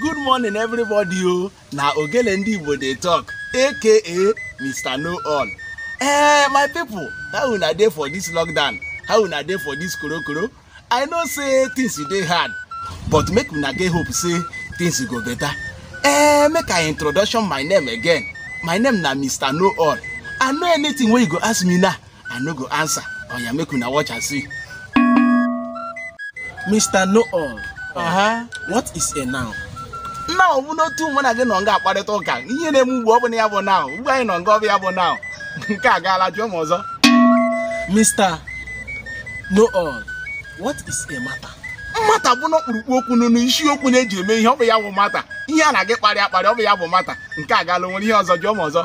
good morning everybody o na ogele ndị igbo dey talk aka mr no all eh my people how una dey for this lockdown how una dey for this korokoro i know say things dey hard but make una get hope say things go better eh make i introduction my name again my name na mr no all i know anything wey you go ask me now i no go answer oya oh make una watch and see. mr no all uh -huh. what is a noun. ọ ọbụ n'otu mụ na gị nọ nga akparịta ụka ihe na-eme ugbo ọ bụla ya bụ naụ ugbo anyị nọ nga ọ bụ ya bụ naụ nke a gaala jụọ m ọzọ Mr. noel all what is a matter? mmata bụ na okwu n'unu isiokwu na-eji eme ihe ọ bụ ya bụ mata ihe a na-agị kparị akparị ọ bụ ya bụ mata nke a gaala nwere ihe ọzọ jụọ m ọzọ